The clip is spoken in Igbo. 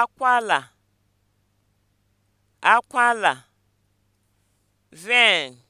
akwala akwala vein